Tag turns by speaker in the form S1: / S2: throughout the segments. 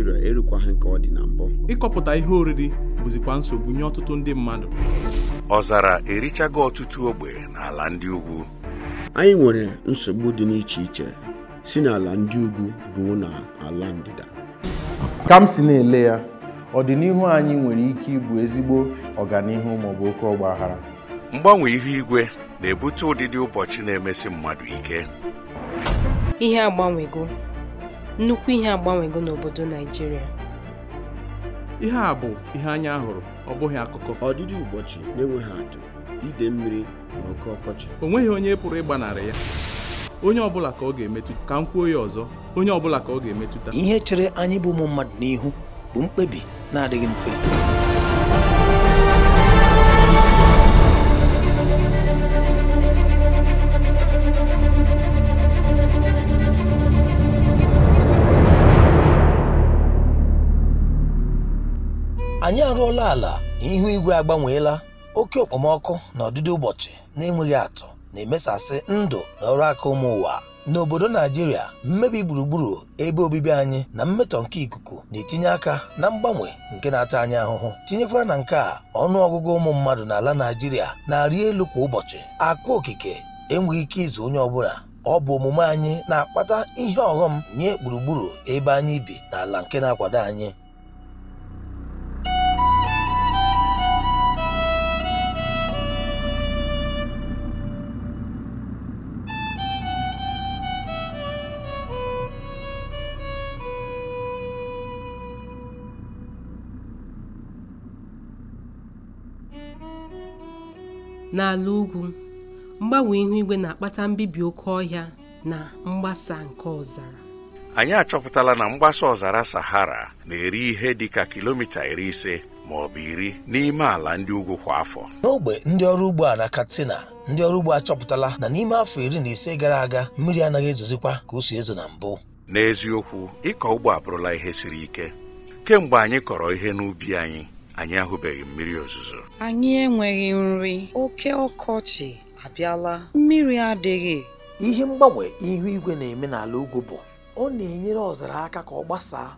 S1: Naịjirịa erukwaghị nke ọ dị na mbụ
S2: ịkọpụta ihe oriri bụzikwa nsogbu nye ọtụtụ ndị mmadụ ọzara erichago ọtụtụ ogbe n'ala ndị ugwu
S1: anyị nwere nsogbu dị n'iche iche si n'ala ndị ugwu ruo n'ala ndịda ka m si na-ele ya
S3: ọdịnihu anyị nwere ike ịbụ ezigbo ọganihu maọbụ oke ọgbaghara.
S4: mgbanwe ihu igwe na-ebute ụdịdị ụbọchị na-emesi mmadụ ike
S5: ihe agbanwego nnukwu ihe agbanwego n'obodo Naijiria.
S2: ihe a bụ ihe anya hụrụ ọ bụghị akụkọ ọdịdị ụbọchị na-enweghị atụ ide mmiri na oke ọkọchị o nweghị onye pụrụ ịgbanarị ya onye ọbụla ka ọ ga-emetụta ka m kwuo ya ọzọ onye ọbụla ka ọ ga-emetụta
S6: ihe chere anyị bụ ụmụ mmadụ n'ihu bụ mkpebi na-adịghị mfe anyị arụọla ala ihu igwe agbanweela oke okpomọkụ na ọdịdị ụbọchị na-enweghị atụ na-emesasị ndụ na ọrụ aka ụmụ ụwa n'obodo Naijiria mmebi gburugburu ebe obibi anyị na mmetọ nke ikuku na-etinye aka na mgbanwe nke na-ata anyị ahụhụ tinyekwara na nke a ọnụ ọgụgụ ụmụ mmadụ n'ala Naijiria na-arị elu kwa ụbọchị akụ okike enweghị ike izu onye ọbụla ọ bụ omume anyị na-akpata ihe ọghọm nye gburugburu ebe anyị bi na ala nke na-akwado anyị
S5: N'ala ugwu, mgbanwe ihu igwe na-akpata mbibi oke ọhịa na mgbasa nke ọzara.
S4: Anyị achọpụtala na mgbasa ọzara Sahara na-eri ihe dị ka kilomita iri ise ma ọ bụ iri n'ime ala ndị ugwu kwa afọ.
S6: N'ogbe ndị ọrụ ugbo a na Katsina, ndị ọrụ ugbo achọpụtala na n'ime afọ iri na ise gara aga mmiri anaghị ezozikwa ka o si ezo
S4: na mbụ. N'eziokwu, ịkọ ugbo abụrụla ihe siri ike. Kemgbe anyị kọrọ ihe n'ubi anyị anyị ahụbeghị mmiri ozuzo
S5: anyị enweghị nri oke
S6: ọkọchị abịala mmiri adịghị ihe mgbanwe ihu igwe na-eme n'ala ugwu bụ ọ na-enyere ọzara aka ka ọ gbasaa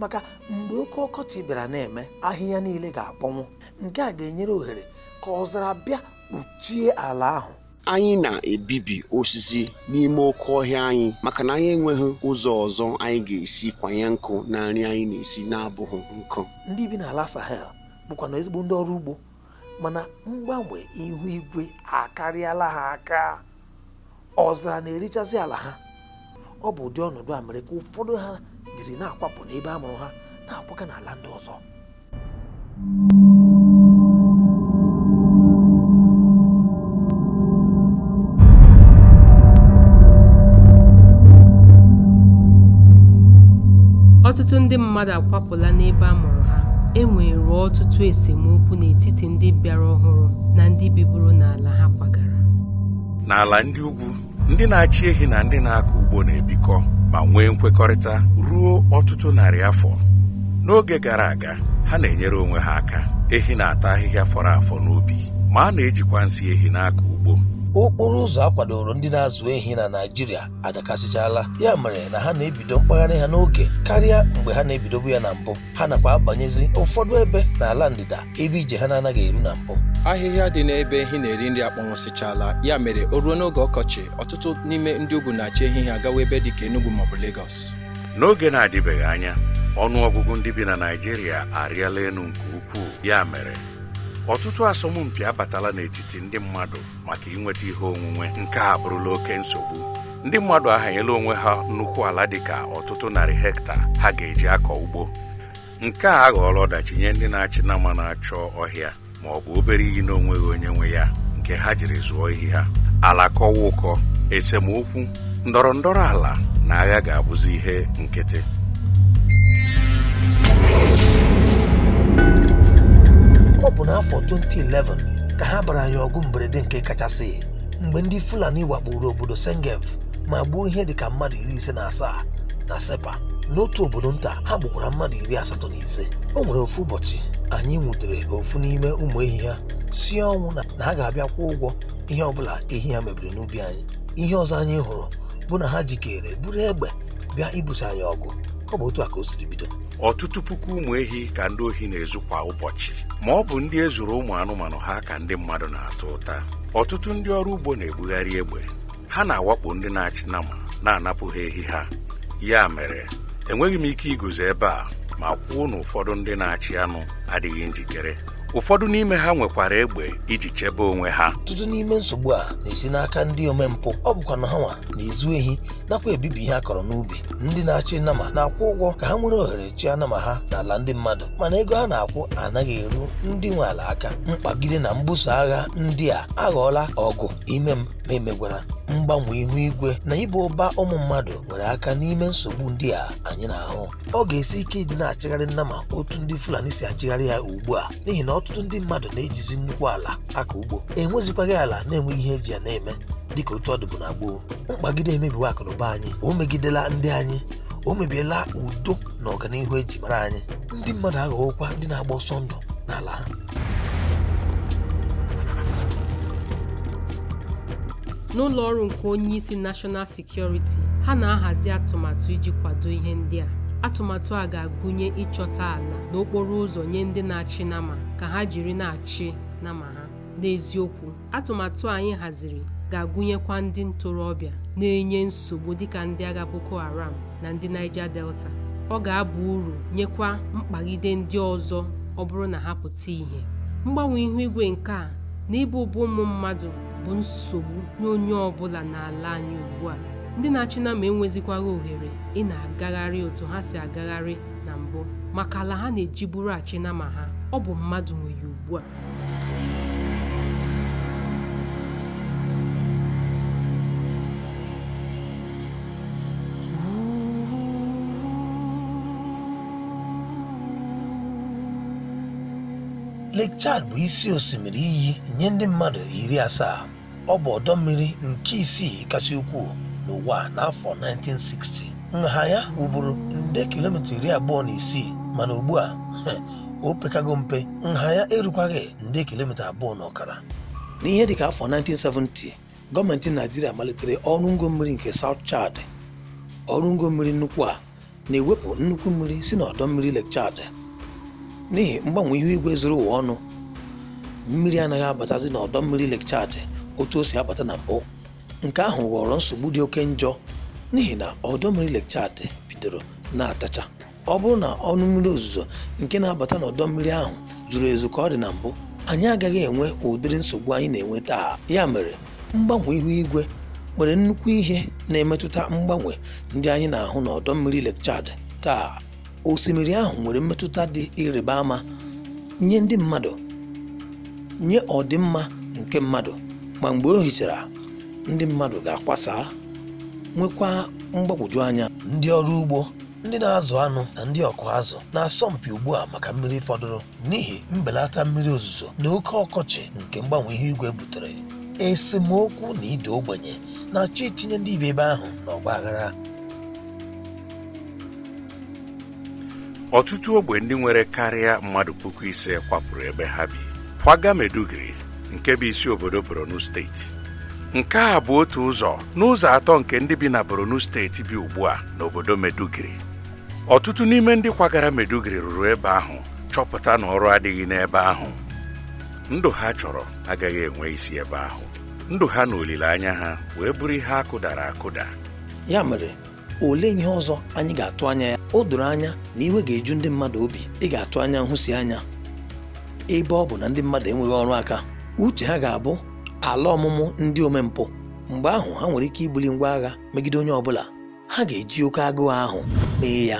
S6: maka mgbe oke ọkọchị bịara na-eme ahịhịa niile ga-akpọnwụ nke a ga-enyere ohere ka ọzara bịa kpuchie
S1: ala ahụ anyị na-ebibi osisi n'ime oke ọhịa anyị maka na anyị enweghị ụzọ ọzọ anyị ga-esi kwanye nkụ na nri anyị na-esi na-abụghị nkụ
S5: ndị bi
S6: n'ala Sahel na ezigbo ndị ọrụ ugbo mana mgbanwe ihu igwe akarịala ha aka ọzara na erichazị ala ha ọ bụ ụdị ọnọdụ a mere ka ụfọdụ ha jiri na-akwapụ n'ebe a mụrụ ha na-akwaga n'ala ndị ọzọ
S5: ọtụtụ ndị mmadụ akwapụla n'ebe a mụrụ ha e nwere ọtụtụ esemokwu n'etiti ndị bịara ọhụrụ na ndị biburu n'ala ha kwagara
S4: n'ala ndị ugwu ndị na-achị ehi na ndị na-akọ ugbo na-ebikọ ma nwee nkwekọrịta ruo ọtụtụ narị afọ n'oge gara aga ha na-enyere onwe ha aka ehi na-ata ahịhịa fọrọ afọ n'ubi ma a na-ejikwa nsị ehi na-akọ ugbo
S6: okporo ụzọ akwadoro ndị na-azụ ehi na Naịjirịa adakasịchala ya mere na ha na-ebido mkpagharị ha n'oge karịa mgbe ha na-ebidobu ya na mbụ ha nakwa abanyezi ụfọdụ ebe n'ala ndịda ebe ije ha na-anaghị eru na mbụ
S3: ahịhịa dị n'ebe ehi na-eri nri akpọnwụsịchala ya mere o ruo n'oge ọkọchị ọtụtụ n'ime ndị ugwu na-achị ehi ha agawa ebe dị ka Enugu
S4: maọbụ Lagos n'oge na-adịbeghị anya ọnụ ọgụgụ ndị bi na Naijiria arịala elu nke ukwuu ya mere ọtụtụ asọmpi abatala n'etiti ndị mmadụ maka inweta ihe onwunwe nke a bụrụla oke nsogbu ndị mmadụ ahanyela onwe ha nnukwu ala dịka ọtụtụ narị hekta ha ga-eji akọ ugbo nke a aghọọla ọdachi nye ndị na-achị na mma na-achọ ọhịa ma ọ bụ obere iyi na onweghị onye nwe ya nke ha jiri zụọ ihe ha ala kọwa ụkọ esemokwu ndọrọ ndọrọ ala na agha ga-abụzi ihe nkịtị
S6: ọ bụ n'afọ 2011 ka ha bara anyị ọgụ mberede nke kachasị mgbe ndị Fulani wakpuru obodo sengev ma gbuo ihe dịka mmadụ iri ise na asaa na Sepa n'otu obodo nta ha gbukwara mmadụ iri asatọ na ise o nwere ofu ụbọchị anyị nwutere ofu n'ime ụmụ ehi ha si ọnwụ na ha ga-abịa kwụọ ụgwọ ihe ọbụla ehi ha mebiri n'ubi anyị ihe ọzọ anyị hụrụ bụ na ha jikere buru egbe bịa ibuso anyị ọgụ ọ bụ otu a ka o siri bido
S4: ọtụtụ puku ụmụ ehi ka ndị ohi na-ezu kwa ụbọchị ma ọ bụ ndị ezuru ụmụ anụmanụ ha ka ndị mmadụ na-atụ ụta ọtụtụ ndị ọrụ ugbo na-ebugharị egbe ha na-awakpo ndị na-achị na nama na-anapụ ha ehi ha ya mere enweghị m ike iguzo ebe a ma kwuo na ụfọdụ ndị na-achị anụ adịghị njikere ụfọdụ n'ime ha nwekwara egbe iji chebe onwe ha ọtụtụ
S6: n'ime nsogbu a na-esi n'aka ndị omempụ ọ bụkwa na ha na-ezu ehi nakwa ebibi ihe a kọrọ n'ubi ndị na-achị nnama na-akwụ ụgwọ ka ha nwere ohere chi anama ha n'ala ndị mmadụ mana ego ha na-akwụ anaghị eru ndị nwe ala aka mkpagide na mbuso agha ndị a aghọọla ọgụ ime m ma emegwara mgbanwe ihu igwe na ịba ụba ụmụ mmadụ nwere aka n'ime nsogbu ndị a anyị na-ahụ ọ ga-esi ike ịdị na-achịgharị nnama otu ndị Fulani si achịgharị ya ugbu a n'ihi na ọtụtụ ndị mmadụ na-ejizi nnukwu ala aka ugbo enwezikwaghị ala na-enweghị ihe eji ya na-eme dịka otu ọdụbụ na gboo mkpagide emebiwe akụnụba anyị o megidela ndị anyị o mebiela udo na ọganihu eji mara anyị ndị mmadụ aghọghokwa ndị na-agba ọsọ ndụ n'ala ha
S5: n'ụlọ ọrụ nke onye isi nashọnal sekuriti ha na-ahazi atụmatụ iji kwado ihe ndị a atụmatụ a ga-agụnye ịchọta ala n'okporo ụzọ nye ndị na-achị nama ka ha jiri na-achị nama ha n'eziokwu atụmatụ anyị haziri ga-agụnyekwa ndị ntorobịa na-enye nsogbu dịka ndị agha Boko Haram na ndị Niger Delta ọ ga-aba uru nyekwa mkpagide ndị ọzọ ọ bụrụ na ha pụta ìhè mgbanwe ihu igwe nke a na ịbụ ụbụ ụmụ mmadụ bụ nsogbu nye onye ọ bụla n'ala anyị ugbu a ndị na-achị na ma enwezikwaghị ohere ị na-agagharị otu ha si agagharị na mbụ maka ala ha na eji bụrụ achịna ma ha ọ bụ mmadụ nwere ugbu a
S6: Lake Chad bụ isi osimiri iyi nye ndị mmadụ iri asaa ọ bụ ọdọ mmiri nke isii kasị ukwuu n'ụwa n'afọ 1960 nha ya wuburu nde kilomita iri abụọ na isii mana ugbu a o pekago mpe nha ya erukwaghị nde kilomita abụọ na ọkara n'ihe dịka afọ 1970 gọọmenti naijiria malitere ọrụ ngo mmiri nke South Chad ọrụ ngo mmiri nnukwu a na-ewepụ nnukwu mmiri si n'ọdọ mmiri Lake n'ihi mgbanwe ihu igwe zuru ụwa ọnụ mmiri anaghị abatazi n'ọdọ mmiri Lake otu o si abata na mbụ Nke ahụ ghọrọ nsogbu dị oke njọ n'ihi na ọdọ mmiri Lake Chad bidoro na-atacha. Ọ bụrụ na ọnụ mmiri ozuzo nke na-abata ọdọ mmiri ahụ zuru ezu ka ọ dị na mbụ, anyị agaghị enwe ụdịrị nsogbu anyị na-enwe taa. Ya mere, mgbanwe ihu igwe nwere nnukwu ihe na-emetụta mgbanwe ndị anyị na-ahụ ọdọ mmiri Lake Chad taa. Osimiri ahụ nwere mmetụta dị ịrịba ama nye ndị mmadụ, nye ọdịmma nke mmadụ ma mgbe o hichara ndị mmadụ ga-akwasa nwekwa mgbagwoju anya ndị ọrụ ugbo ndị na-azụ anụ na ndị ọkụ azụ na-asọmpi ugbu a maka mmiri fọdụrụ n'ihi mbelata mmiri ozuzo na oke ọkọchị nke mgbanwe ihe igwe butere esemokwu na ide ogbenye na-achọ itinye ndị ibe ebe ahụ n'ọgba aghara
S4: ọtụtụ ogbe ndị nwere karịa mmadụ puku ise kwapụrụ ebe ha bi kwaga Meduguri nke bụ isi obodo Borno steeti nke a bụ otu ụzọ n'ụzọ atọ nke ndị bi na Borno steeti bi ugbu a n'obodo Meduguri ọtụtụ n'ime ndị kwagara Meduguri ruru ebe ahụ chọpụta na ọrụ adịghị n'ebe ahụ ndụ ha chọrọ agaghị enwe isi ebe ahụ ndụ ha na olileanya ha wee bụrụ ihe akụdara akụda
S6: ya mere olee ihe ọzọ anyị ga-atụ anya ya o doro anya na iwe ga-eju ndị mmadụ obi ị ga-atụ anya nhụsi anya ebe ọ bụ na ndị mmadụ enweghị ọrụ aka uche ha ga-abụ ala ọmụmụ ndị omempụ mgbe ahụ ha nwere ike ibuli ngwa agha megide onye ọbụla ha ga-eji oke agụụ ahụ mee ya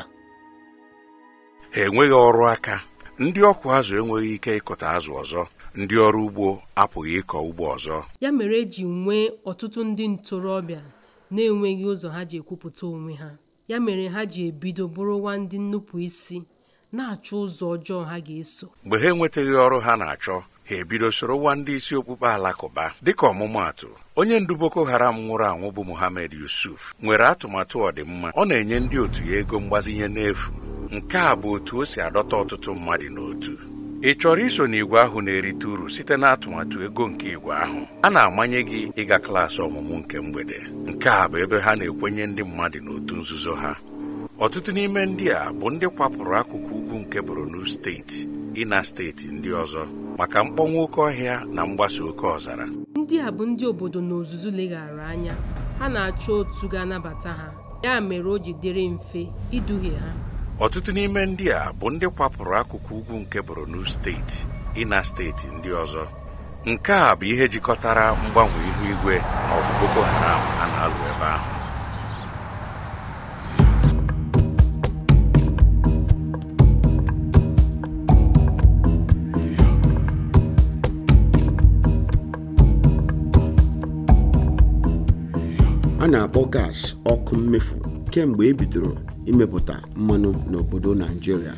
S4: ha enweghị ọrụ aka ndị ọkụ azụ enweghị ike ịkụta azụ ọzọ ndị ọrụ ugbo apụghị ịkọ ugbo ọzọ
S5: ya mere eji nwee ọtụtụ ndị ntorobịa na-enweghị ụzọ ha ji ekwupụta onwe ha ya mere ha ji ebido bụrụwa ndị nnupụ isi na-achọ ụzọ ọjọọ ha ga-eso
S4: mgbe ha enwetaghị ọrụ ha na-achọ ha ebido soro nwa ndị isi okpukpe alakụba dịka ọmụmaatụ onye ndu Boko Haram nwụrụ anwụ bụ Mohammed Yusuf nwere atụmatụ ọdịmma ọ na-enye ndị otu ya ego mgbazinye n'efu nke a bụ otu o si adọta ọtụtụ mmadụ n'otu ị chọrọ iso n'igwe ahụ na-erite uru site n'atụmatụ ego nke ìgwè ahụ a na-amanye gị ịga klaasị ọmụmụ nke mgbede nke a bụ ebe ha na-ekwenye ndị mmadụ n'otu nzuzo ha ọtụtụ n'ime ndị a bụ ndị kwapụrụ akụkụ ugwu nke Borno steeti ịna steeti ndị ọzọ maka mkpọnwụ oke ọhịa na mgbasa oke ọzara
S5: ndị a bụ ndị obodo na ozuzu leghara anya ha na-achọ otu ga-anabata ha ya mere o ji dịrị mfe iduhie ha
S4: ọtụtụ n'ime ndị a bụ ndị kwapụrụ akụkụ ugwu nke Borno steeti ịna steeti ndị ọzọ nke a bụ ihe jikọtara mgbanwe ihu igwe na ọgụ Boko Haram a na-alụ ebe ahụ
S1: na-akpọ gas ọkụ mmefu kemgbe e bidoro imepụta mmanụ n'obodo Naijiria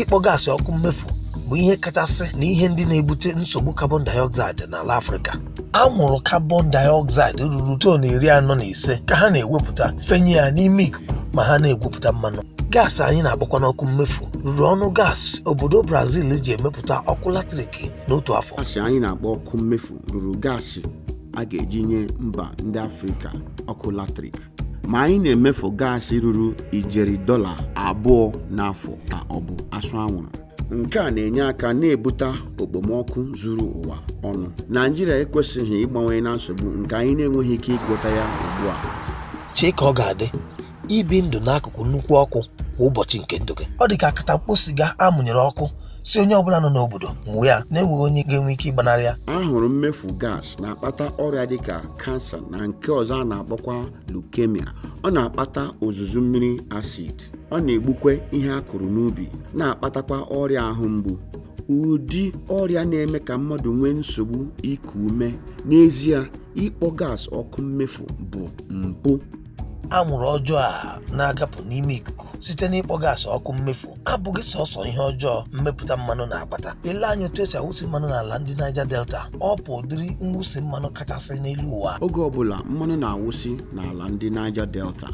S6: ịkpọ gaasị ọkụ mmefu bụ ihe kachasị na ihe ndị na-ebute nsogbu carbon dioxide n'ala Afrịka anwụrụ carbon dioxide ruru ton iri anọ na ise ka ha na-ewepụta fenye ya n'ime ikuku ma ha na-egwupụta mmanụ gaasị anyị na-agbakwa n'ọkụ mmefu ruru ọnụ gaasị obodo Brazil ji emepụta ọkụ latrik
S1: n'otu afọ gaasị anyị na akpọ ọkụ mmefu ruru gaasị a ga-eji nye mba ndị afrịka ọkụ latrik ma anyị na-emefu gaasị ruru ijeri dọla abụọ n'afọ ka ọ bụ asụ anwụrụ nke a na-enye aka na-ebute okpomọkụ zuru ụwa ọnụ naijiria ekwesịghị ịgbanwe na nsogbu nke anyị na-enweghị ike ịgwọta ya ugbu a
S6: chee ka ọ ga-adị ibi ndụ n'akụkụ nnukwu ọkụ kwa ụbọchị nke ndụ gị ọ dị ka akatakpo siga amụnyere ọkụ si onye ọbụla nọ n'obodo mụọ ya na-enweghị onye ga-enwe ike ịgbanarị ya ahụrụ mmefu gas na-akpata
S1: ọrịa dịka kansa na nke ọzọ a na-akpọkwa leukemia ọ na-akpata ozuzu mmiri acid ọ na-egbukwe ihe a kụrụ n'ubi na-akpatakwa ọrịa ahụ mgbu ụdị ọrịa na-eme ka mmadụ nwee nsogbu iku ume n'ezie
S6: ịkpọ gas ọkụ mmefu bụ mpụ anwụrụ ọjọọ a na-agapụ n'ime ikuku site n'ịkpọ gaasị ọkụ mmefu abụghị sọsọ ihe ọjọọ mmepụta mmanụ na-akpata ele anya otu esi awụsi mmanụ n'ala ndị Naija Delta ọ bụ ụdịrị mwụsi mmanụ kachasị n'elu ụwa
S1: oge ọbụla mmanụ na-awụsi n'ala ndị Naija Delta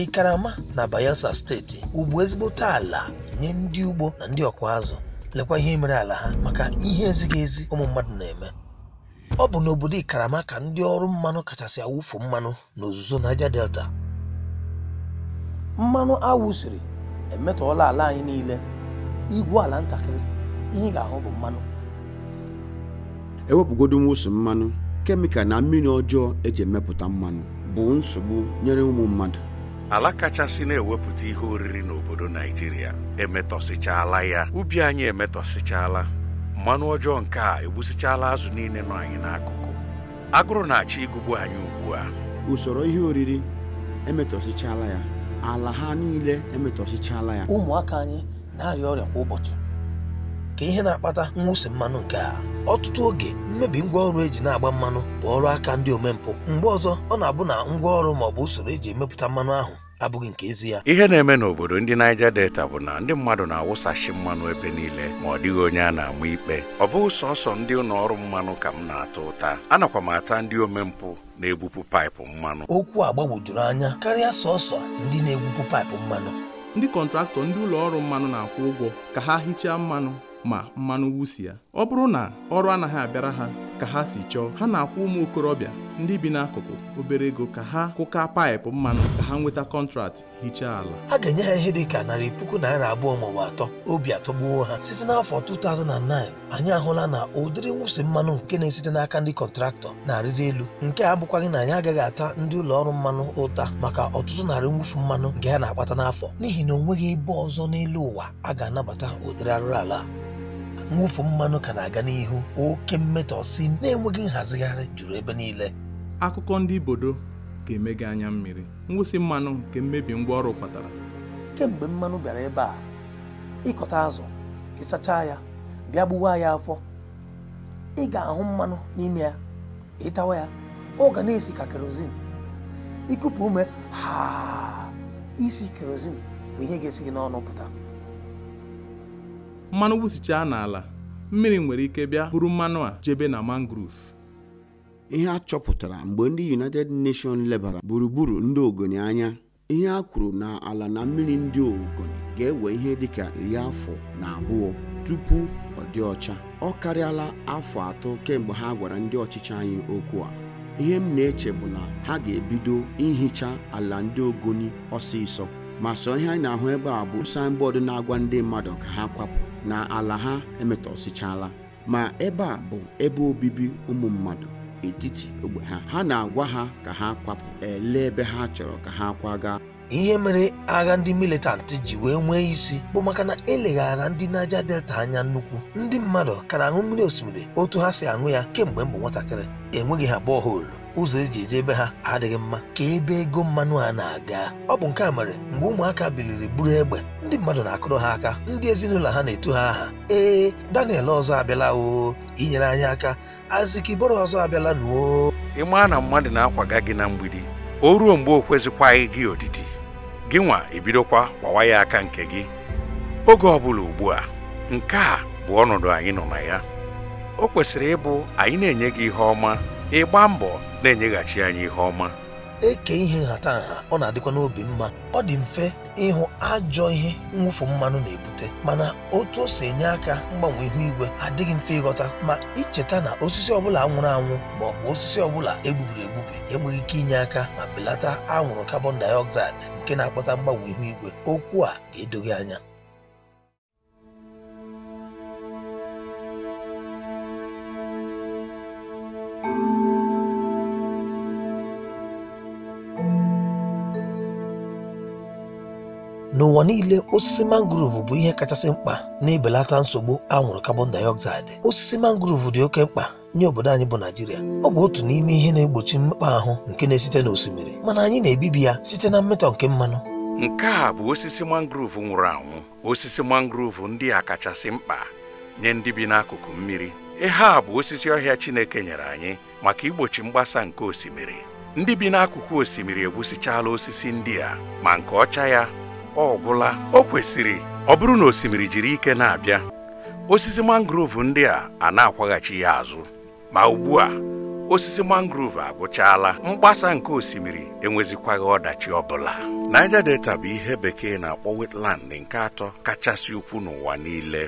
S6: Ikarama na Bayelsa steeti ugbo ezigbote ala nye ndị ugbo na ndị ọkụ azụ lekwa ihe mere ala ha maka ihe ezighị ezi ụmụ mmadụ na-eme ọ bụ n'obodo Ikarama ka ndị ọrụ mmanụ kachasị awụfu mmanụ n'ozuzo naija Delta mmanụ awụsiri emetọọla ala anyị niile igwu ala ntakịrị ihe ị ga-ahụ bụ mmanụ
S1: ewepụgodo mwụsụ mmanụ kemịkal na mmiri ọjọọ eji emepụta mmanụ bụ nsogbu nyere ụmụ mmadụ
S6: ala
S4: kachasị na-ewepụta ihe oriri n'obodo naijiria emetọsịchaala ya ubi anyị emetọsịchaala mmanụ ọjọọ nke a egbusịchaala azụ niile nọ anyị n'akụkụ agụrụ na-achọ ịgụgbu anyị ugbu a
S1: usoro ihe oriri emetọsịchaala ya
S6: ala ha niile emetọsichala ya ụmụaka anyị na-arịa ọrịa kwa ụbọchị ka ihe na-akpata mwụsi mmanụ nke a ọtụtụ oge mmebi ngwaọrụ eji na-agba mmanụ bụ ọrụ aka ndị omempụ mgbe ọzọ ọ na-abụ na ngwaọrụ maọbụ usoro eji emepụta mmanụ ahụ abụghị nke ezi ya
S4: ihe na-eme n'obodo ndị naija Delta bụ na ndị mmadụ na-awụsachi mmanụ ebe niile ma ọ dịghị onye a na-ama ikpe ọ bụghị sọsọ ndị ụlọ ọrụ mmanụ ka m na-ata ụta anakwa m ata ndị omempụ na egbupụ paịpụ mmanụ
S6: okwu a gbagwojuru anya karịa sọsọ ndị na-egwupụ paịpụ mmanụ
S2: ndị kọntraktọ ndị ụlọ ọrụ mmanụ na-akwụ ụgwọ ka ha hichaa mmanụ ma mmanụ wusi ya ọ bụrụ na ọrụ anaghị abịara ha ka ha si chọọ ha na-akwụ ụmụ okorobịa ndị bi n'akụkụ obere ego ka ha kụka paịpụ mmanụ ka ha nweta kọntrat
S6: hichaa ala a ga-enye ha ihe dị ka narị puku naira abụọ maọbụ atọ obi atọgbuo ha site n'afọ 2009 anyị ahụla na ụdịrị nwụsị mmanụ nke na-esite n'aka ndị kọntraktọ na-arịzi elu nke a abụkwaghị na anyị agaghị ata ndị ụlọ ọrụ mmanụ ụta maka ọtụtụ narị mwụfu mmanụ nke ha na-akpata n'afọ n'ihi na ọ nweghị ebe ọzọ n'elu ụwa a ga-anabata ụdịrị arụrụ ala mwụfu mmanụ ka na-aga n'ihu oke si na-enweghị nhazigharị juru ebe niile
S2: akụkọ ndị ibodo ga-emega anya mmiri ngwụsị mmanụ nke mmebi ngwaọrụ kpatara
S6: kemgbe mmanụ bịara ebe a ịkọta azụ ịsacha ya bịa gbuwa ya afọ ị ga-ahụ mmanụ n'ime ya ịtawa ya ọ na-esi ka kerozin ikupu ume ha isi kerozin bụ ihe ga-esi gị n'ọnụ pụta
S2: mmanụ wụsichaa n'ala mmiri nwere ike bịa bụrụ mmanụ a jebe na mangrove ihe
S1: a chọpụtara mgbe ndị united nations lebara gburugburu ndị ogoni anya ihe a kwuru na ala na mmiri ndị ogoni ga-ewe ihe dịka iri afọ na abụọ tupu ọ dị ọcha ọ karịala afọ atọ kemgbe ha gwara ndị ọchịchị anyị okwu a ihe m na-eche bụ na ha ga-ebido ihicha ala ndị ogoni ọsịsọ ma sọ ihe anyị na-ahụ ebe a bụ signboard na-agwa ndị mmadụ ka ha kwapụ na ala ha emetọsichala ma ebe a bụ ebe obibi ụmụ mmadụ etiti ogbe ha ha na-agwa ha ka ha kwapụ lee ebe ha chọrọ ka ha kwaga
S6: ihe mere agha ndị militantị ji wee nwee isi bụ maka na eleghara ndị naja Delta anya nnukwu ndị mmadụ kara na-aṅụ mmiri osimiri otu ha si aṅụ ya kemgbe m nwatakịrị enweghị ha bọọholu ụzọ eji eje ebe ha adịghị mma ka ebe ego mmanụ a na-aga ọ bụ nke a mere mgbe ụmụaka biliri buru egbe ndị mmadụ na-akụrụ ha aka ndị ezinụlọ ha na-eto ha aha ee Daniel ọzọ abịala o inyere anyị aka azikiboro ọzọ abịala nuo
S4: ịmaa na mmadụ na-akwaga gị na mgbidi o ruo mgbe o kwezikwaghị gị odidi gị nwa ebidokwa kwawa ya aka nke gị oge ọbụla ugbu a nke a bụ ọnọdụ anyị nọ na ya o kwesịrị ịbụ anyị na-enye gị ihe ọma ịgba mbọ na-enyeghachi anyị ihe ọma
S6: eke ihe nha ọ na-adịkwa n'obi mma ọ dị mfe ịhụ ajọ ihe mwụfu mmanụ na-ebute mana otu o si enye aka mgbanwe ihu igwe adịghị mfe ịghọta ma icheta na osisi ọbụla anwụrụ anwụ ma ọ bụ osisi ọbụla egbubiri egbubi enweghị ike inye aka ma belata anwụrụ carbon dioxide nke na-akpata mgbanwe ihu igwe okwu a ga-edoghị anya n'ụwa niile osisi mangrove bụ ihe kachasị mkpa na-ebelata nsogbu anwụrụ carbon dioxide osisi mangrove dị oke mkpa nye obodo anyị bụ naijiria ọ bụ otu n'ime ihe na-egbochi mmekpa ahụ nke na-esite n'osimiri mana anyị na-ebibi ya site na mmetọ nke mmanụ
S4: nke a bụ osisi mangrove nwụrụ anwụ osisi mangrove ndị a kachasị mkpa nye ndị bi n'akụkụ mmiri ihe a bụ osisi ọhịa chineke nyere anyị maka igbochi mgbasa nke osimiri ndị bi n'akụkụ osimiri egwusichala osisi ndị a ma nke ọcha ya ọ gwụla o kwesịrị ọ bụrụ na osimiri jiri ike na-abịa osisi mangrove ndị a a na-akwaghachi ya azụ ma ugbu a osisi mangrove agwụchaala mgbasa nke osimiri enwezikwaghị ọdachi ọbụla Niger Delta bụ ihe bekee na-akpọ wetland nke atọ kachasị ukwu n'ụwa niile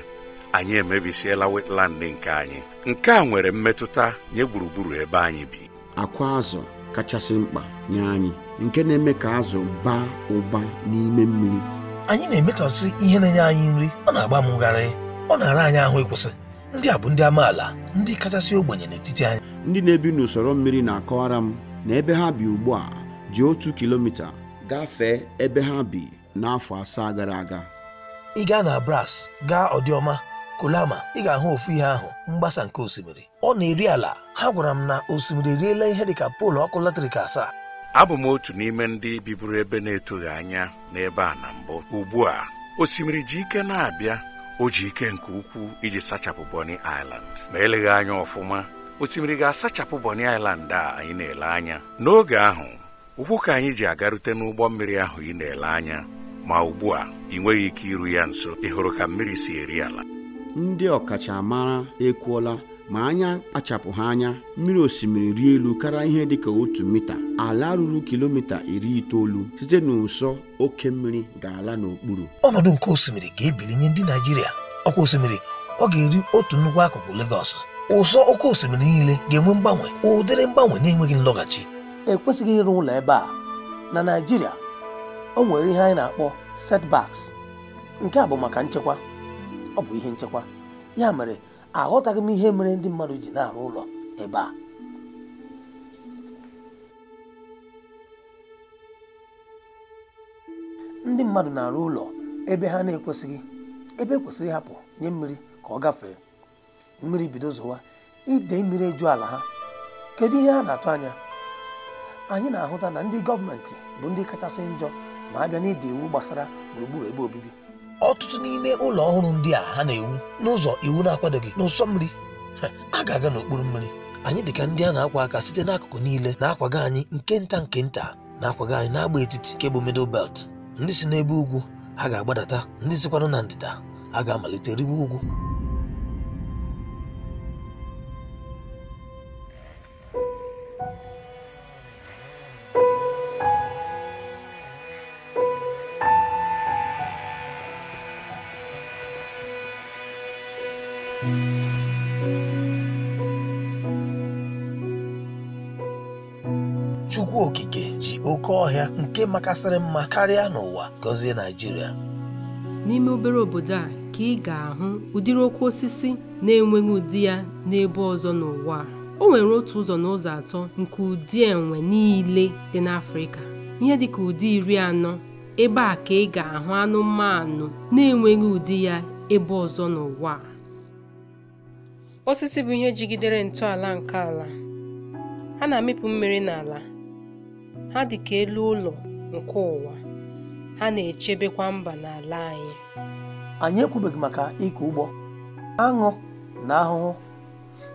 S4: anyị emebisiela wetland nke anyị nke a nwere mmetụta nye gburugburu ebe anyị bi
S1: akwa azụ kachasị mkpa nye anyị nke na-eme ka azụ baa ụba n'ime mmiri
S6: anyị na-emetọsị ihe na-enye anyị nri ọ na-agba m ụgharị ọ na-ara anyị ahụ ịkwụsị ndị a bụ ndị amaala ndị kachasị ogbenye n'etiti anyị
S1: ndị na-ebi n'usoro mmiri na-akọwara m na ebe ha bi ugbu a ji otu kilomita gafee ebe ha bi n'afọ asaa gara aga
S6: ị gaa na Bras gaa ọdịọma Kolama ị ga-ahụ ofu ihe ahụ mgbasa nke osimiri ọ na-eri ala ha gwara m na osimiri eriela ihe dịka poolu ọkụ latrik asaa
S4: abụ m otu n'ime ndị biburu ebe na-etoghị anya n'ebe a na mbụ ugbu a osimiri ji ike na-abịa o ji ike nke ukwuu iji sachapụ Bonny Island ma eleghị anya ọfụma osimiri ga-asachapụ Bonny Island a anyị na-ele anya n'oge ahụ ụkwụ ka anyị ji agarute n'ụgbọ mmiri ahụ ị na-ele anya ma ugbu a ị nweghị ike iru ya nso ị ka mmiri si eri ala
S1: ndị ọkachamara ekwuola ma anya kpachapụ ha anya mmiri osimiri rie elu kara ihe dịka otu mita ala ruru kilomita iri itoolu site n'ụsọ oke
S6: mmiri ga-ala n'okpuru ọnọdụ nke osimiri ga-ebili nye ndị Naijiria ọkwa osimiri ọ ga-eri otu nnukwu akụkụ Lagos ụsọ oke osimiri niile ga-enwe mgbanwe ụdịrị mgbanwe na-enweghị nlọghachi ekwesịghị ịrụ ụlọ ebe a na Naijiria o nwere ihe anyị na-akpọ setbacks nke a bụ maka nchekwa ọ bụ ihe nchekwa ya mere aghọtaghị m ihe mere ndị mmadụ ji na-arụ ụlọ ebe a ndị mmadụ na-arụ ụlọ ebe ha na-ekwesịghị ebe e kwesịrị ịhapụ nye mmiri ka ọ gafee mmiri bido zowa ide mmiri eju ala ha kedu ihe a na-atụ anya anyị na-ahụta na ndị gọọmenti bụ ndị kachasị njọ ma a bịa na ide iwu gbasara gburugburu ebe obibi ọtụtụ n'ime ụlọ ọhụrụ ndị a ha na-ewu n'ụzọ iwu na-akwadoghị n'ụsọ mmiri a ga-aga n'okpuru mmiri anyị dị ka ndị a na-akwa aka site n'akụkụ niile na-akwaga anyị nke nta nke nta na-akwaga anyị n'agba etiti nke bụ belt ndị si n'ebe ugwu ha ga-agbadata ndị sikwanụ na ndịda a ga-amalite riwe ugwu Chukwu okike ji oke ọhịa nke makasịrị mma karịa n'ụwa gọzie Naịjirịa
S5: n'ime obere obodo a ka ị ga-ahụ ụdịrị okwu osisi na-enweghị ụdị ya n'ebe ọzọ n'ụwa o nwere otu ụzọ n'ụzọ atọ nke ụdị enwe niile dị n'Afrịka ihe dịka ụdị iri anọ ebe a ka ị ga-ahụ anụmanụ na-enweghị ụdị ya ebe ọzọ n'ụwa osisi bụ ihe jigidere ntọala nke ala ha na-amịpụ mmiri n'ala Ha dị ka elu ụlọ nke ụwa, ha na-echebekwa mba n'ala anyị.
S6: Anyị ekwubeghị maka ịkụ ụgbọ aṅụ na ahụhụ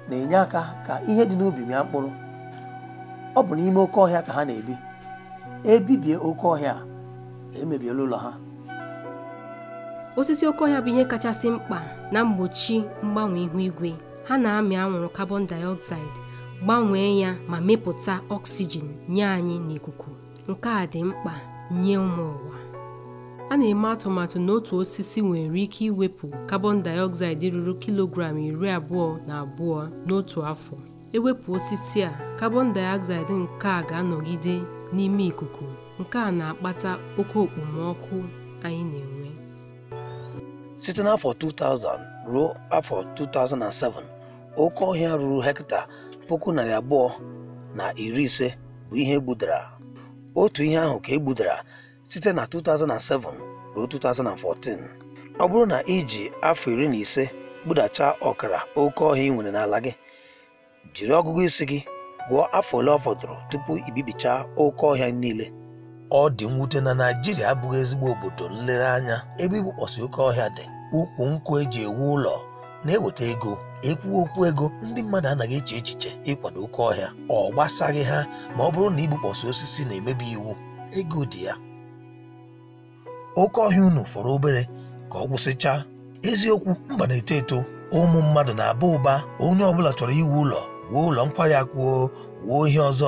S6: na-enye aka ka ihe dị n'ubi mịa mkpụrụ. Ọ bụ n'ime oke ọhịa ka ha na-ebi. Ebibie oke ọhịa, emebiela ụlọ ha.
S5: Osisi oke ọhịa bụ ihe kachasị mkpa na mgbochi mgbanwe ihu igwe. Ha na-amị anwụrụ carbon dioxide gbanwee ya ma mepụta ọksijin nye anyị n'ikuku nke a dị mkpa nye ụmụ ụwa a na-eme atụmatụ na otu osisi nwere ike iwepụ carbon dioxide ruru kilogram iri abụọ na abụọ n'otu afọ ewepụ osisi a carbon dioxide nke a ga-anọgide n'ime ikuku nke a na-akpata oke okpomọkụ anyị na-enwe
S6: site n'afọ 2000 ruo afọ 2007 oke ọhịa ruru hekta puku narị abụọ na iri ise bụ ihe egbudara otu ihe ahụ ka egbudara site na 2007 ruo 2014 ọ bụrụ na iji afọ iri na ise gbudacha ọkara oke ọhịa ị nwere n'ala gị jiri ọgụgụ isi gị gụọ afọ ole ọ fọdụrụ tupu ibibichaa oke ọhịa niile ọ dị mwute na Naịjirịa abụghị ezigbo obodo nlereanya ebe igbukpọsị oke ọhịa dị ukwu nkwụ eji ewu ụlọ na-eweta ego ekwuwa okwu ego ndị mmadụ anaghị eche echiche ịkwado oke ọhịa ọ gbasaghị ha ma ọ bụrụ na igbukpọsị osisi na-emebi iwu ego dị ya oke ọhịa unu fọrọ obere ka ọ gwụsịchaa eziokwu mba na-eto eto ụmụ mmadụ na-aba ụba onye ọbụla chọrọ iwu ụlọ wuo ụlọ nkwari akụ wuo ihe ọzọ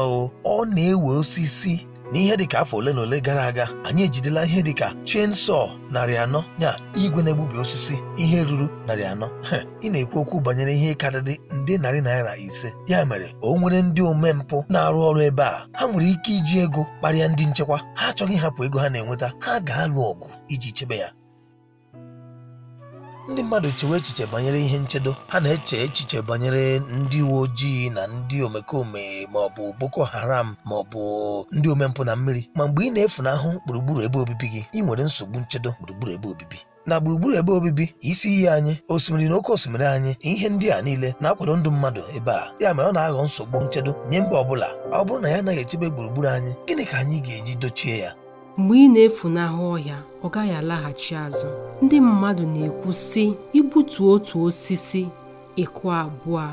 S6: ọ na-ewe osisi n'ihe dị dịka afọ ole na ole gara aga anyị ejidela ihe dị dịka chainsaw narị anọ ya igwe na-egbubi osisi ihe ruru narị anọ ị na-ekwu okwu banyere ihe karịrị ndị narị naira ise ya mere o nwere ndị omempụ na-arụ ọrụ ebe a ha nwere ike iji ego kparịa ndị nchekwa ha achọghị ịhapụ ego ha na-enweta ha ga-alụ ọgụ iji chebe ya ndị mmadụ chewe echiche banyere ihe nchedo ha na-eche echiche banyere ndị uwe ojii na ndị omekome ma ọ bụ boko haram ma ọ bụ ndị omempụ na mmiri ma mgbe ị na-efunahụ gburugburu ebe obibi gị ị nwere nsogbu nchedo gburugburu ebe obibi na gburugburu ebe obibi isi iyi anyị osimiri na oke osimiri anyị ihe ndị a niile na-akwado ndụ mmadụ ebe a ya mere ọ na-aghọ nsogbu nchedo nye mba ọbụla ọ bụrụ na ya anaghị echebe gburugburu anyị gịnị ka anyị ga-eji dochie ya
S5: mgbe ị na-efunahụ ọhịa ọ gaghị alaghachi azụ ndị mmadụ na-ekwu sị igbutu otu osisi ịkụ abụọ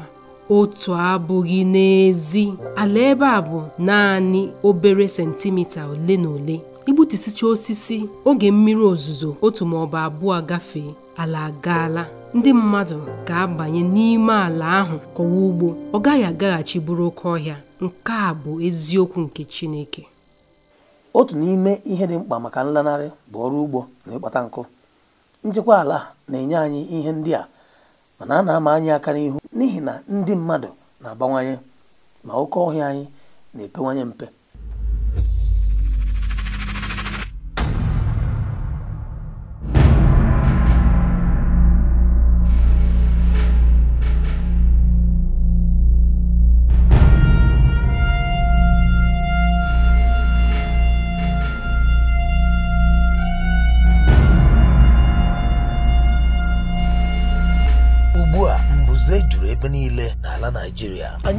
S5: otu abụghị n'ezi ala ebe a bụ naanị obere sentimita ole na ole igbutusicha osisi oge mmiri ozuzo otu ma ọ bụ abụọ gafee ala agaala ndị mmadụ ga-abanye n'ime ala ahụ kọwa ugbo ọ gaghị agaghachi bụrụ oke ọhịa nke a bụ eziokwu nke Chineke
S6: otu n'ime ihe dị mkpa maka nlanarị bụ ọrụ ugbo na ịkpata nkụ njikwa ala na-enye anyị ihe ndị a mana a na-ama anyị aka n'ihu n'ihi na ndị mmadụ na-abawanye ma oke ọhịa anyị na-epewanye mpe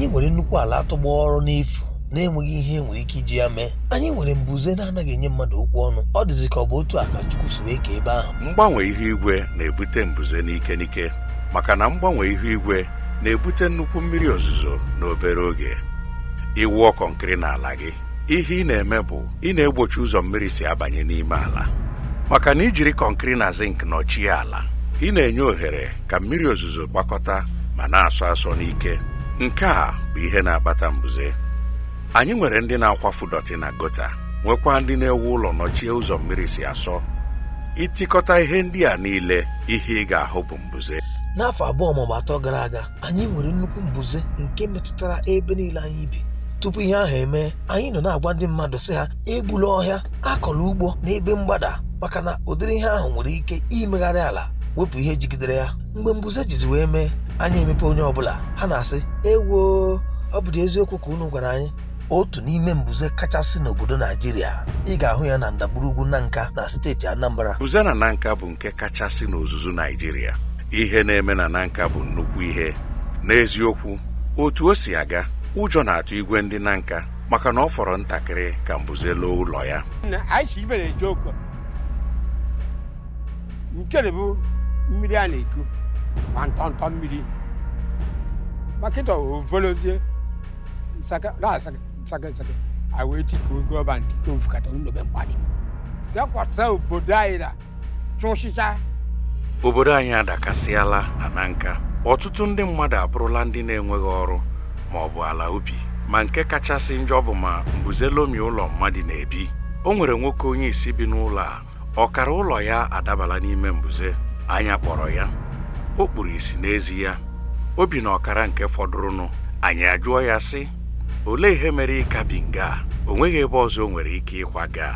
S6: anyị nwere nnukwu ala atụgbọ ọrụ n'efu na-enweghị ihe nwere ike iji ya mee anyị nwere mbuze na-anaghị enye mmadụ okwu ọnụ ọ dịzị ka ọ bụ otu a ka Chukwu si wee ka ebe ahụ
S4: mgbanwe ihu igwe na-ebute mbuze n'ike n'ike maka na mgbanwe ihu igwe na-ebute nnukwu mmiri ozuzo n'obere oge iwu kọnkịrị n'ala gị ihe ị na-eme bụ ị na-egbochi ụzọ mmiri si abanye n'ime ala maka na ijiri kọnkịrị na zink nọchie ala ị na-enye ohere ka mmiri ozuzo gbakọta ma na-asọ asọ n'ike nke a bụ ihe na-akpata mbuze anyị nwere ndị na-akwafu dọtị na gota nwekwa ndị na-ewu ụlọ nọchie ụzọ mmiri si asọ ịtịkọta ihe ndị a niile ihe ị ga-ahụ bụ mbuze
S6: n'afọ abụọ maọbụ atọ gara aga anyị nwere nnukwu mbuze nke metụtara ebe niile anyị bi tupu ihe ahụ emee anyị nọ na-agwa ndị mmadụ sị ha egbula ọhịa akọla ugbo n'ebe mgbada maka na ụdịrị ihe ahụ nwere ike imegharị ala wepụ ihe jigidere ya mgbe mbuze jizi wee mee anya emepe onye ọbụla ha na-asị ewo ọ bụdị eziokwu ka unu gwara anyị otu n'ime mbuze kachasị n'obodo naijiria ị ga-ahụ ya na ndagburugwu nanka na steeti anambra
S4: mbuze na nanka bụ nke kachasị n'ozuzu naijiria ihe na-eme na nanka bụ nnukwu ihe n'eziokwu otu o si aga ụjọ na-atụ igwe ndị nanka maka na ọ fọrọ ntakịrị ka mbuze loo ụlọ ya
S1: nke bụ mmiri a na-eku ntọntọ mmiri makịta ovolozie nsakasaka awee tikuo gọba ntiko mfukata nnobe mkpadị bịakwasa obodo anyị na cha.
S4: obodo anyị adakasịala ana nka ọtụtụ ndị mmadụ abụrụla ndị na-enweghị ọrụ ma ọ bụ ala ubi ma nke kachasị njọ bụ ma mbuze lomi ụlọ mmadụ na-ebi o nwere nwoke onye isi bi n'ụlọ a ọkara ụlọ ya adabala n'ime mbuze anya kpọrọ ya o kpuru isi n'ezi ya o bi ọkara nke fọdụrụnụ anyị ajụọ ya sị olee ihe mere ịka bi nga o nweghị ebe ọzọ o nwere ike ịkwaga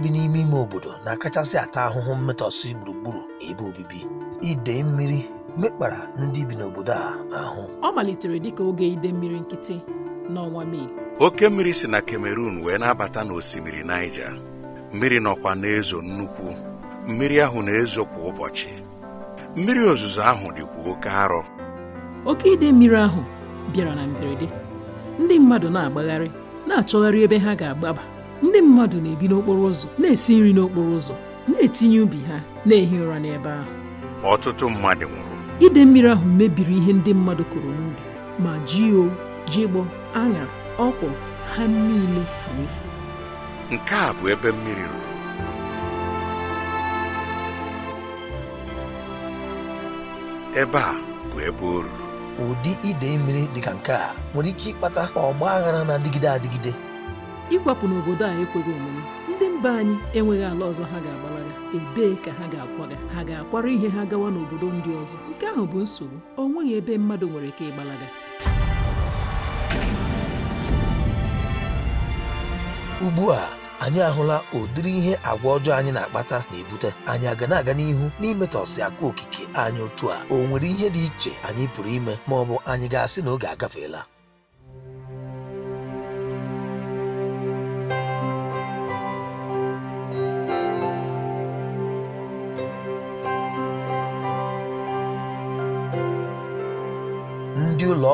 S6: ndị bi n'ime ime obodo na-akachasị ata ahụhụ mmetọsị gburugburu ebe obibi idei mmiri mekpara ndị bi n'obodo a ahụ
S5: ọ malitere dịka oge ide mmiri nkịtị n'ọnwa Mee
S4: oke mmiri si na Cameroon wee na-abata n'osimiri Niger mmiri nọkwa na-ezo nnukwu mmiri ahụ na-ezo kwa ụbọchị mmiri ozuzo ahụ dịkwa oke arọ
S5: oke ide mmiri ahụ bịara na mberede ndị mmadụ na-agbagharị na-achọgharị ebe ha ga-agbaba ndị mmadụ na-ebi n'okporo ụzọ na-esi nri n'okporo ụzọ na-etinye ubi ha na-ehi ụra n'ebe ahụ
S4: ọtụtụ mmadụ nwụrụ
S5: ide mmiri ahụ mebiri ihe ndị mmadụ kụrụ n'ubi ma jio jigbo aṅa ọkwọ, ha niile furu efu
S4: nke a bụ ebe mmiri ruru
S6: ebe a bụ ebe o ruru ụdị ide mmiri dị ka nke a nwere ike ịkpata ọgba aghara na-adịgide adịgide
S5: ịkwapụ n'obodo a ekweghị omume ndị mba anyị enweghị ala ọzọ ha ga-agbalaga ebee ka ha ga-akwaga ha ga-akwara ihe ha gawa n'obodo ndị ọzọ nke ahụ bụ nsogbu o nweghị ebe mmadụ nwere ike ịgbalaga
S6: ugbu a anyị ahụla ụdịrị ihe agwa ọjọọ anyị na-akpata na-ebute anyị aga na-aga n'ihu n'imetọsi akụ okike anyị otu a o nwere ihe dị iche anyị pụrụ ime ma ọ bụ anyị ga-asị na oge agafeela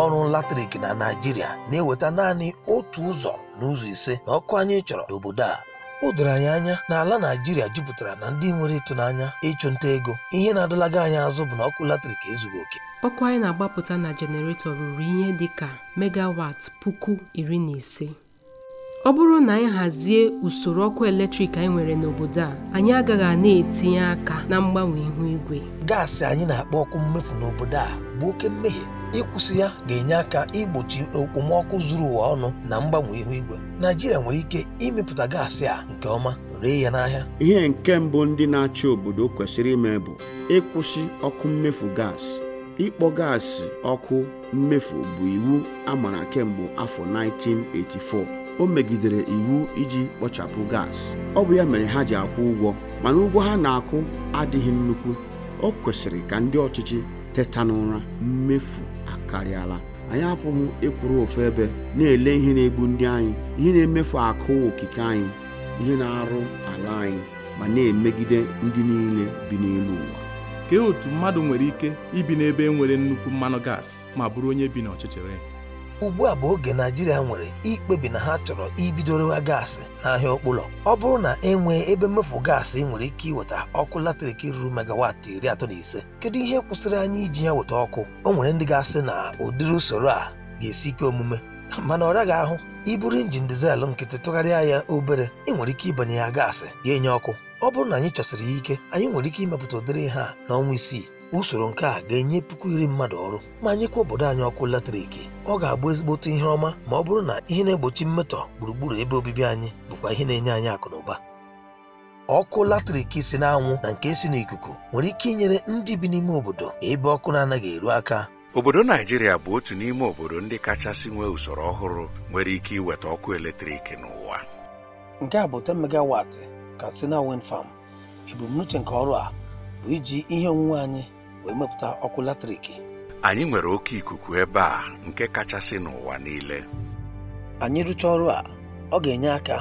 S6: ọrụ latrik na Naịjirịa na-eweta naanị otu ụzọ n'ụzọ ise na ọkụ anyị chọrọ n'obodo a o anyị anya na ala Naịjirịa jupụtara na ndị nwere ịtụnanya ịchụ nta ego ihe na-adọlaga anyị azụ bụ na ọkụ latrik ezughị
S5: oke ọkụ anyị na-agbapụta na jeneretọ ruru ihe dị ka megawat puku iri na ise ọ bụrụ na anyị hazie usoro ọkụ eletrik anyị nwere n'obodo a anyị agaghị a na-etinye aka na mgbanwe ihu igwe gaasị anyị na-akpọ ọkụ mmefu n'obodo a bụ oke mmehie
S6: ịkwụsị ya ga-enye aka igbochi okpomọkụ zuru ụwa ọnụ na mgbanwe ihu igwe naijiria nwere ike imepụta gaasị a nke ọma ree ya n'ahịa
S1: ihe nke mbụ ndị na-achị obodo kwesịrị ime bụ ịkwụsị ọkụ mmefu gas ịkpọ gaasị ọkụ mmefu bụ iwu a mara kemgbe afọ 1984 o megidere iwu iji kpochapụ gasị ọ bụ ya mere ha ji akwụ ụgwọ mana ụgwọ ha na-akwụ adịghị nnukwu o kwesịrị ka ndị ọchịchị teta n'ụra mmefu akarịala anyị apụghị ịkwụrụ ofu ebe na-ele ihe na-egbu ndị anyị ihe na-emefu akụ okike anyị ihe na-arụ ala anyị
S2: ma na-emegide ndị niile bi n'elu ụwa kee otu mmadụ nwere ike ibi n'ebe e nwere nnukwu mmanụ gas ma bụrụ onye bi n'ọchịchịrị
S6: ugbu a bụ oge naijiria nwere ikpebi na ha chọrọ ibidorewa gaasị n'ahịa okpulọ ọ bụrụ na enwee ebe mmefu gaasị nwere ike iweta ọkụ latrik ruru megawatị iri atọ na ise kedu ihe kwụsịrị anyị iji ya weta ọkụ o nwere ndị ga-asị na ụdịrị usoro a ga-esi ike omume mana ọ raghị ahụ iburu injin dizel nkịtị tụgharịa ya obere ị nwere ike ịbanye ya gaasị ya enye ọkụ ọ bụrụ na anyị chọsiri ya ike anyị nwere ike imepụta ụdịrị ha n'ọnwa isii usoro nke a ga-enye puku iri mmadụ ọrụ ma nyekwa obodo anyị ọkụ latrik ọ ga-agba ezigbote ihe ọma ma ọ bụrụ na ihe na-egbochi mmetọ gburugburu ebe obibi anyị bụkwa ihe na-enye anyị akụ ọkụ latrik si n'anwụ na nke si n'ikuku nwere ike inyere ndị bi n'ime obodo ebe ọkụ na-anaghị eru aka
S4: obodo naijiria bụ otu n'ime obodo ndị kachasị nwee usoro ọhụrụ nwere ike iweta ọkụ eletrik n'ụwa
S6: nke a bụ 10 megawatt Katsina Wind Farm ebumnuche nke ọrụ a bụ iji ihe onwunwe anyị wee mepụta ọkụ latrik
S4: anyị nwere oke ikuku ebe a nke kachasị n'ụwa niile
S6: anyị rụchaa ọrụ a ọ ga-enye aka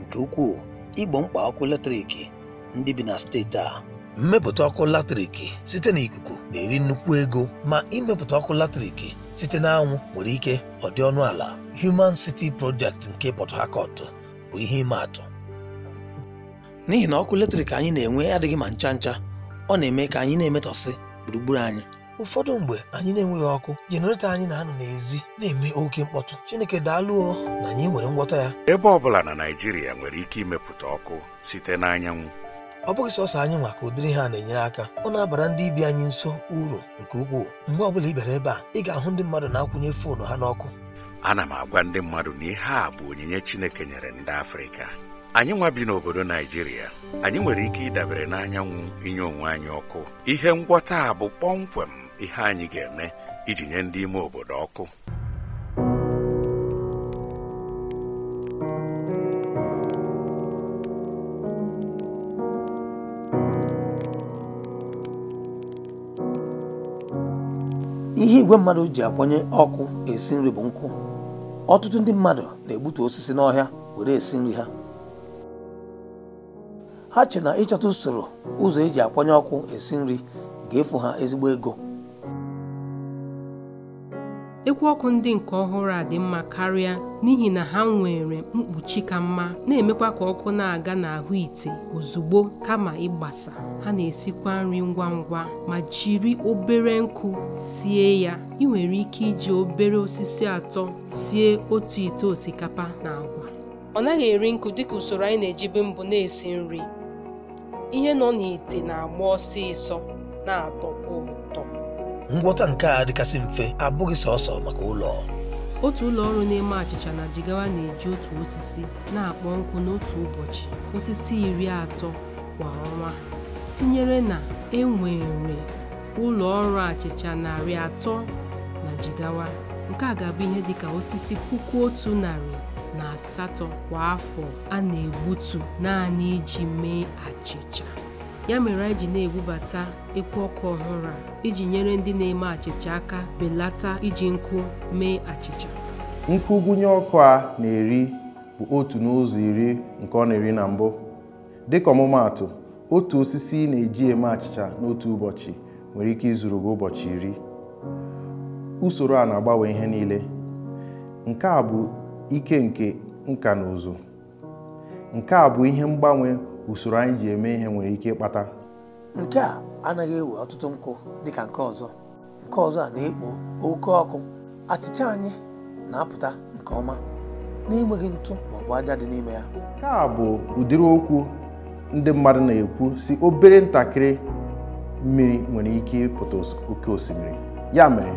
S6: nke ukwuu igbo mkpa ọkụ latrik ndị bi na steeti a mmepụta ọkụ latrik site na ikuku na-eri nnukwu ego ma imepụta ọkụ latrik site na anwụ nwere ike ọ ọnụ ala Human City Project nke Port Harcourt bụ ihe ịma atụ n'ihi na ọkụ latrik anyị na-enwe adịghị ma ncha ncha ọ na-eme ka anyị na-emetọsị gburugburu anyị ụfọdụ mgbe anyị na-enweghị ọkụ jenereto anyị na-anọ n'ezi na-eme oke mkpọtụ chineke daalụọ na anyị nwere ngwọta ya
S4: ebe ọ bụla na naijiria nwere ike imepụta ọkụ site n'anyanwụ
S6: ọ bụghị sọsọ anyị nwa ka ụdịrị ha na-enyere aka ọ na-abara ndị ibi anyị nso uru nke ukwuu mgbe ọbụla ị bịara ebe a ị ga-ahụ ndị mmadụ na-akwụnye foonu ha n'ọkụ
S4: ana m agwa ndị mmadụ na ihe a bụ onyinye chineke nyere ndị afrịka anyị nwa bi n'obodo naijiria anyị nwere ike ịdabere n'anyanwụ inye onwe anyị ọkụ ihe ngwọta a bụ kpọmkwem ihe anyị ga-eme iji nye ndị ime obodo ọkụ
S6: ihe igwe mmadụ ji akwanye ọkụ esi nri bụ nkụ ọtụtụ ndị mmadụ na-egbutu osisi n'ọhịa were esi nri ha ha che na ịchọta usoro ụzọ eji akwanye ọkụ esi nri ga-efu ha ezigbo ego
S5: ekwu ọkụ ndị nke ọhụrụ a dị mma karịa n'ihi na ha nwere mkpuchi ka mma na-emekwa ka ọkụ na-aga n'ahụ ite ozugbo kama ịgbasa ha na-esikwa nri ngwa ngwa ma jiri obere nkụ sie ya ị nwere ike iji obere osisi atọ sie otu ite osikapa na agwa ọ naghị eri nkụ dịka usoro anyị na-ejibe mbụ na-esi nri ihe nọ n'ite na-agba ọsịsọ na-atọkwa ụtọ
S6: ngwọta nke a dịkasị mfe abụghị sọsọ maka ụlọ
S5: otu ụlọ ọrụ na-eme achịcha na jigawa na-eji otu osisi na-akpọ nkụ n'otu ụbọchị osisi iri atọ kwa ọnwa tinyere na enwere ụlọ ọrụ achịcha narị atọ na jigawa nke a ga-abụ ihe dịka osisi puku otu narị asatọ kwa afọ a na-egbutu naanị iji mee achịcha ya mere anyị ji na-ebubata ekwu ọkụ ọhụrụ a iji nyere ndị na-eme achịcha aka belata iji nkụ mee achịcha
S3: nkụ gụnye ọkụ a na-eri bụ otu n'ụzọ iri nke ọ na-eri na mbụ dịka ọmụmaatụ otu osisi ị na-eji eme achịcha n'otu ụbọchị nwere ike izuru gị ụbọchị iri usoro a na-agbanwe ihe niile nke a bụ ike nke nka na ụzụ nke a bụ ihe mgbanwe usoro anyị ji eme ihe nwere ike ịkpata
S6: nke a anaghị ewe ọtụtụ nkụ dịka nke ọzọ nke ọzọ a na-ekpo oke ọkụ achịcha anyị na-apụta nke ọma n'enweghị ntụ bụ aja dị n'ime ya
S3: nke a bụ ụdịrị okwu ndị mmadụ na-ekwu si obere ntakịrị mmiri nwere ike ịpụta oke osimiri ya mere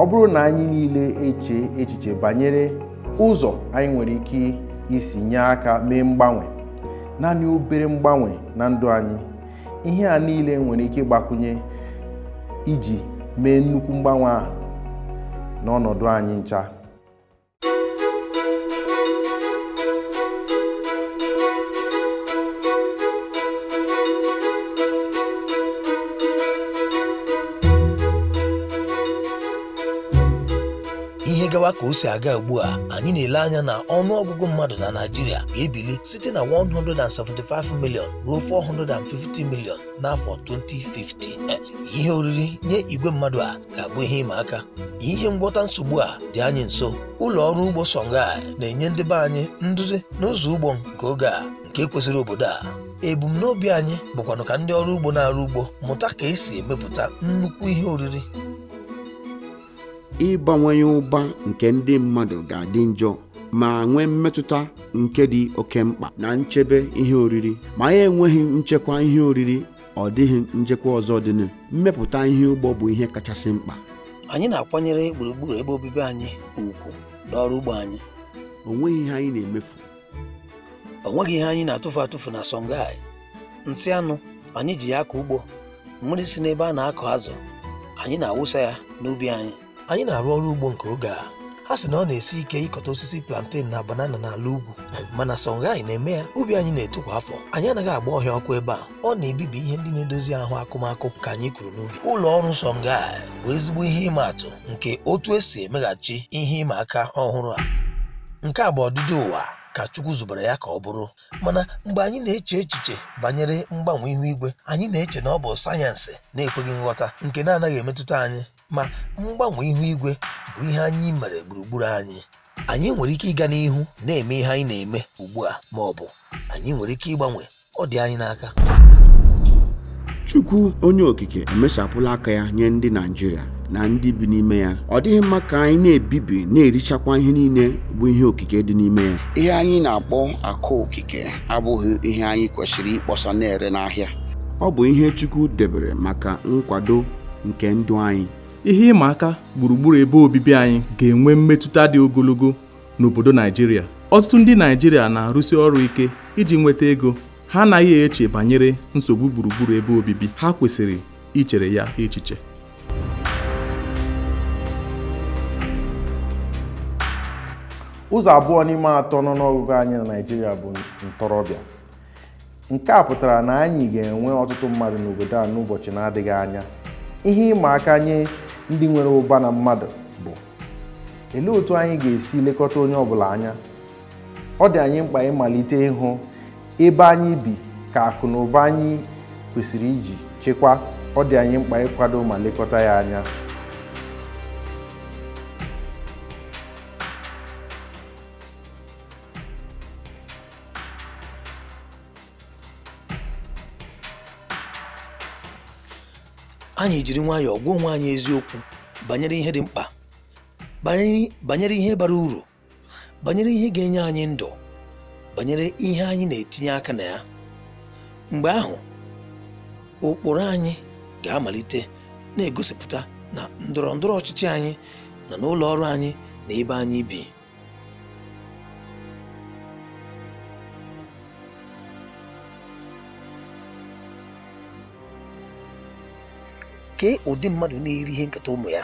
S3: ọ bụrụ na anyị niile eche echiche banyere ụzọ anyị nwere ike isi nye aka mee mgbanwe naanị obere mgbanwe na ndụ anyị ihe a niile nwere ike ịgbakwunye iji mee nnukwu mgbanwe a n'ọnọdụ anyị ncha
S6: ihe gawa ka o si aga ugbu a anyị na-ele anya na ọnụ ọgụgụ mmadụ na Naịjirịa ga-ebili site na 175 ruo 450 n'afọ 2050 e, ihe oriri nye igwe mmadụ a ga-abụ ihe ịma aka ihe ngwọta nsogbu a dị anyị nso ụlọ ọrụ ugbo Songhai na-enye ndị anyị nduzi n'ụzọ ugbo nke oge a nke kwesịrị obodo a ebumnobi anyị bụkwanụ ka ndị ọrụ ugbo na-arụ ugbo mụta ka esi emepụta nnukwu ihe oriri
S1: ịgbanwenye ụba nke ndị mmadụ ga-adị njọ ma nwee mmetụta nke dị oke mkpa na nchebe ihe oriri ma ya enweghị nchekwa ihe oriri ọ dịghị nchekwa ọzọ dịnụ mmepụta ihe ugbo bụ ihe kachasị mkpa
S6: anyị na-akwanyere gburugburu ebe obibi anyị ugwu n'ọrụ ugbo anyị o nweghị ihe anyị na-emefu o nweghị ihe anyị na-atụfu atụfu na songai nsị anụ anyị ji ya akọ ugbo mmiri si n'ebe a na-akọ azụ anyị na-awụsa ya n'ubi anyị anyị na-arụ ọrụ ugbo nke oge a ha sị na ọ na-esi ike ịkọta osisi plantain na banana n'ala ugwu mana songai na-eme ya ubi anyị na-eto kwa afọ anyị anaghị agba ọhịa ọkụ ebe a ọ na-ebibi ihe ndị na-edozi ahụ akụmakụ ka anyị kwuru n'ubi ụlọ ọrụ sọnga bụ ezigbo ihe ịma atụ nke otu esi emeghachi ihe ịma aka ọhụrụ a nke a bụ ọdịdị ụwa ka Chukwu zubere ya ka ọ bụrụ mana mgbe anyị na-eche echiche banyere mgbanwe ihu igwe anyị na-eche na ọ bụ sayensị na-ekweghị nghọta nke na-anaghị emetụta anyị ma mgbanwe ihu igwe bụ ihe anyị mere gburugburu anyị anyị nwere ike ịga n'ihu na-eme ihe anyị na-eme ugbu a ma ọ bụ anyị nwere ike ịgbanwe ọ dị anyị n'aka
S1: Chukwu onye okike emesapụla aka ya nye ndị Naịjirịa na ndị bi n'ime ya ọ dịghị mma ka anyị na-ebibi na-erichakwa ihe niile bụ ihe okike dị n'ime ya ihe anyị na-akpọ akụ okike abụghị ihe anyị kwesịrị ịkpọsa na-ere n'ahịa
S2: ọ bụ ihe Chukwu debere maka nkwado nke ndụ anyị ihe ịma aka gburugburu ebe obibi anyị ga-enwe mmetụta dị ogologo n'obodo Naijiria ọtụtụ ndị Naijiria na-arụsi ọrụ ike iji nweta ego ha anaghị eche banyere nsogbu gburugburu ebe obibi ha kwesịrị ichere ya echiche
S3: ụzọ abụọ n'ime atọ nọ n'ọgụgụ anyị na Naijiria bụ ntorobịa nke a pụtara na anyị ga-enwe ọtụtụ mmadụ n'obodo a n'ụbọchị na-adịghị anya ihe ịma aka nye ndị nwere ụba na mmadụ bụ olee otu anyị ga-esi lekọta onye ọbụla anya ọ dị anyị mkpa ịmalite ịhụ ebe anyị bi ka akụ na ụba anyị kwesịrị iji chekwaa ọ dị anyị mkpa ịkwado ma lekọta ya anya
S6: anyị jiri nwayọọ gwa onwe anyị eziokwu banyere ihe dị mkpa banyere ihe bara uru banyere ihe ga-enye anyị ndụ banyere ihe anyị na-etinye aka na ya mgbe ahụ ụkpụrụ anyị ga-amalite na-egosipụta na ndọrọ ndọrọ ọchịchị anyị na n'ụlọ ọrụ anyị na ebe anyị bi kee ụdị mmadụ na-eri ihe nketa ụmụ ya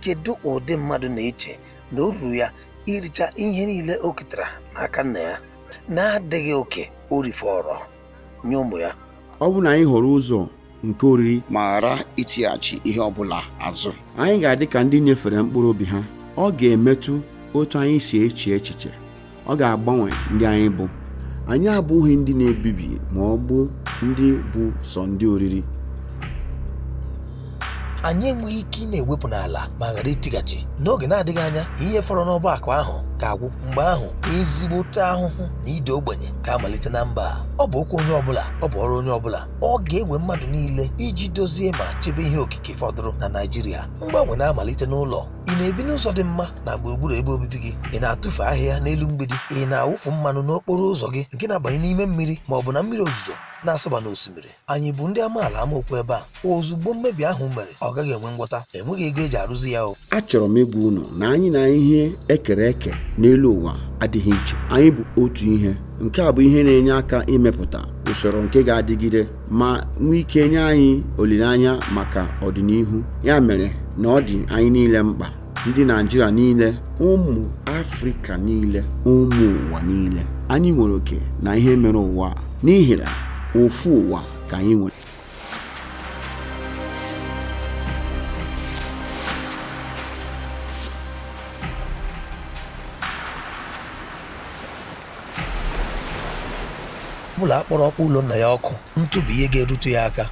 S6: kedu ụdị mmadụ na-eche na o ruru ya iricha ihe niile o ketara n'aka nna ya na-adịghị oke o rifọrọ nye ụmụ ya
S1: ọ bụ na anyị hụrụ ụzọ nke oriri ma ghara itighachi ihe ọ bụla azụ anyị ga-adị ka ndị nyefere mkpụrụ obi ha ọ ga-emetụ otu anyị si eche echiche ọ ga-agbanwe ndị anyị bụ anyị abụghị ndị na-ebibi ma ọ bụ ndị bụ sọ ndị oriri
S6: anyị enweghị ike ị na-ewepụ n'ala ma ghara itighachi n'oge na-adịghị anya ihe fọrọ n'ọba akụ ahụ ga-agwụ mgbe ahụ ezigbote ahụhụ na ide ogbenye ga-amalite na mba ọ bụ okwu onye ọbụla ọ bụ ọrụ onye ọbụla ọ ga-ewe mmadụ niile iji dozie ma chebe ihe okike fọdụrụ na Naịjirịa mgbanwe na-amalite n'ụlọ ị na-ebi n'ụzọ dị mma na gburugburu ebe obibi gị ị na atụfe ahịhịa n'elu mgbidi ị na-awụfu mmanụ n'okporo ụzọ gị nke na-abanye n'ime mmiri ma ọ bụ na mmiri ozuzo na-asọba n'osimiri anyị bụ ndị amaala amaokwu ebe a ozugbo mmebi ahụ mere ọ gaghị enwe ngwọta enweghị ego eji arụzi ya o
S1: achọrọ m ịgwa unu na anyị na ihe ekere eke n'elu ụwa adịghị iche anyị bụ otu ihe nke a bụ ihe na-enye aka imepụta usoro nke ga-adịgide ma nwee ike nye anyị olileanya maka ọdịnihu ya mere na ọ dị anyị niile mkpa ndị Naijiria niile ụmụ Afrịka niile ụmụ ụwa niile anyị nwere oke na ihe mere ụwa n'ihi na ofu ụwa ka anyị nwere
S6: ọbụla akpọrọ ọkpọ ụlọ nna ya ọkụ ntụ bụ ihe ga erutu ya aka